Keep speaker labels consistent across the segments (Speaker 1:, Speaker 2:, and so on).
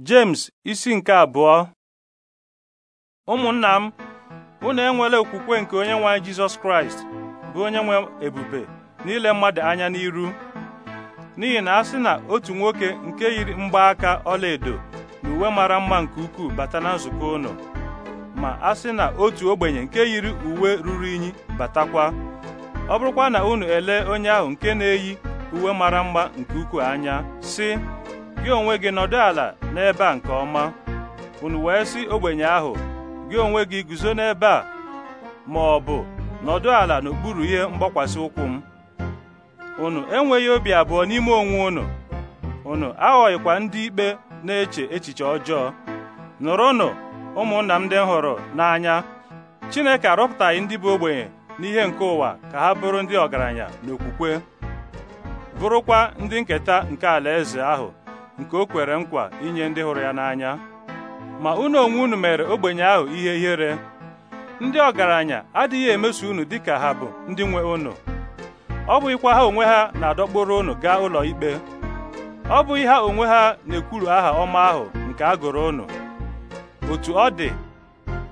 Speaker 1: James isi nke abụọ ụmụnna m unu enwela okwukwe nke onye nwe anyị Jizọs Kraịst bụ onye nwe ebube n'ile mmadụ anya n'iru n'ihi na a sị na otu nwoke nke yiri mgbaaka ọlaedo na uwe mara mma nke ukwuu bata na nzukọ ụnọ, ma a sị na otu ogbenye nke yiri uwe ruru unyi batakwa ọ bụrụkwa na unu elee onye ahụ nke na-eyi uwe mara mma nke ukwuu anya sị gị onwe gị nọdụ ala n'ebe a nke ọma unu wee sị ogbenye ahụ gị onwe gị guzo n'ebe a ma ọ bụ nọdụ ala n'okpuru ihe mgbakwasị ụkwụ m unu enweghị obi abụọ n'ime onwe unu unu aghọghịkwa ndị ikpe na-eche echiche ọjọọ nụrụnụ ụmụnna m ndị hụrụ n'anya Chineke arọpụtaghị ndị bụ ogbenye n'ihe nke ụwa ka ha bụrụ ndị ọgaranya n'okwukwe bụrụkwa ndị nketa nke alaeze ahụ nke o kwere nkwa inye ndị hụrụ ya n'anya ma unu onwe unu mere ogbenye ahụ ihe ihere ndị ọgaranya adịghị emeso unu dịka ha bụ ndị nwe unu ọ bụghịkwa ha onwe ha na-adọkpụrụ unu gaa ụlọ ikpe ọ bụghị ha onwe ha na-ekwuru aha ọma ahụ nke a gụrụ unu otu ọ dị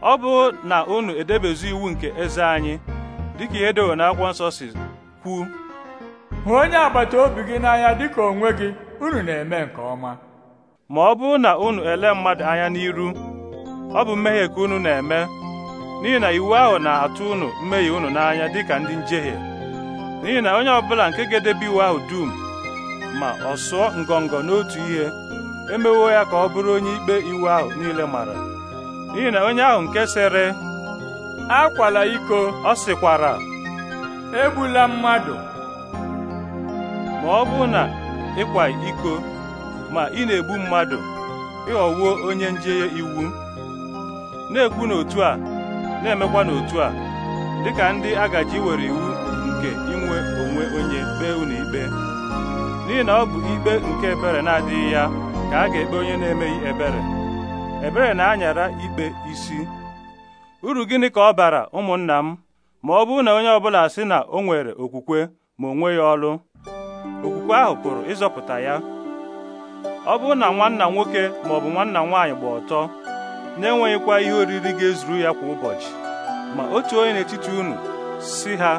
Speaker 1: ọ bụ na unu edebezu iwu nke eze anyị dịka ihe dewere n'akwụkwọ nsọ si kwu hụ onye agbata obi gị n'anya dịka onwe gị unu na-eme nke ọma ma ọ bụrụ na unu ele mmadụ anya n'iru ọ bụ mmehie ka unu na-eme n'ihi na iwu ahụ na-atụ unu mmehie unu n'anya dịka ndị njehie n'ihi na onye ọbụla nke ga-edebe iwu ahụ dum ma ọ sụọ ngọngọ n'otu ihe emewo ya ka ọ bụrụ onye ikpe iwu ahụ niile mara n'ihi na onye ahụ nke sịrị akwala iko ọ sịkwara egbula mmadụ ma ọ bụ na ịkwa iko ma ị na-egbu mmadụ ịghọwo onye njehie iwu na-ekwu n'otu a na-emekwa n'otu a dịka ndị agaji were iwu nke inwe onwe onye kpee unu ikpe n'ihi na ọ bụ ikpe nke ebere na-adịghị ya ka a ga-ekpe onye na-emeghị ebere ebere na-anyara ikpe isi uru gịnị ka ọ bara ụmụnna m ma ọ bụrụ na onye ọbụla sị na o nwere okwukwe ma o ya ọlụ okwukwe ahụ pụrụ ịzọpụta ya ọ bụrụ na nwanna nwoke ma ọ bụ nwanna nwaanyị gba ọtọ na-enweghịkwa ihe oriri ga-ezuru ya kwa ụbọchị ma otu onye n'etiti unu si ha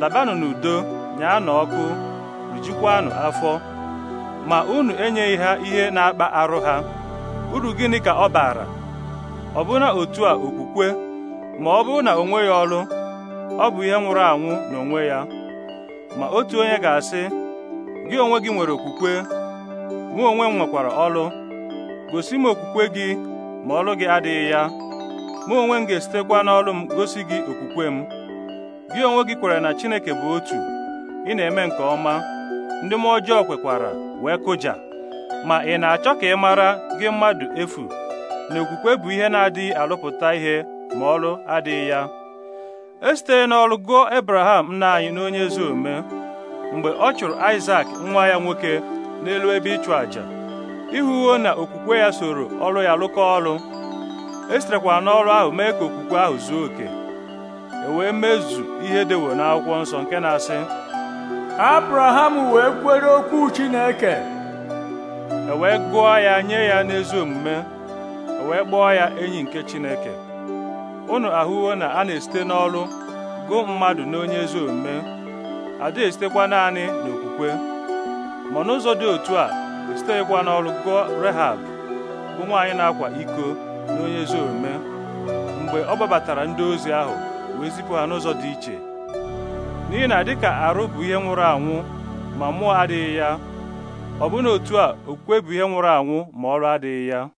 Speaker 1: labanụ n'udo na ọkụ rijikwanụ afọ ma unu enyeghị ha ihe na-akpa arụ ha uru gịnị ka ọ baara na otu a okwukwe ma ọ bụrụ na o nweghị ọrụ ọ bụ ihe nwụrụ anwụ n'onwe ya ma otu onye ga-asị gị onwe gị nwere okwukwe mụ onwe m nwekwara ọlụ gosi m okwukwe gị ma ọlụ gị adịghị ya mụ onwe m ga-esitekwa n'ọlụ m gosi gị okwukwe m gị onwe gị kwere na Chineke bụ otu ị na-eme nke ọma ndị m ọjọọ kwekwara wee kụja ma ị na-achọ ka ị mara gị mmadụ efu na okwukwe bụ ihe na-adịghị alụpụta ihe ma ọlụ adịghị ya esite n'ọlụ gụọ Abraham nna anyị n'onye ezi omume mgbe ọ chụrụ Aịsak nwa ya nwoke n'elu ebe ịchụ àjà ịhụwo na okwukwe ya soro ọrụ ya lụkọ ọrụ e sitekwara n'ọrụ ahụ mee ka okwukwe ahụ zuo oke e wee mezu ihe dewo n'akwụkwọ nsọ nke na-asị Abraham wee kwere okwu Chineke e wee gụọ ya nye ya n'ezi omume e wee kpọọ ya enyi nke Chineke Ụnụ ahụwo na a na-esite n'ọrụ gụọ mmadụ n'onye ezi omume na-esitekwa naanị n'okwukwe ma n'ụzọ dị otu a esiteghịkwa n'ọrụ gụọ Rehab bụ nwaanyị na-akwa iko na onye ezi omume mgbe ọ gbabatara ndị ozi ahụ wee zipụ ha n'ụzọ dị iche n'ihi na dịka arụ bụ ihe nwụrụ anwụ ma mmụọ adịghị ya ọ bụ na otu a okwukwe bụ ihe nwụrụ anwụ ma ọrụ adịghị ya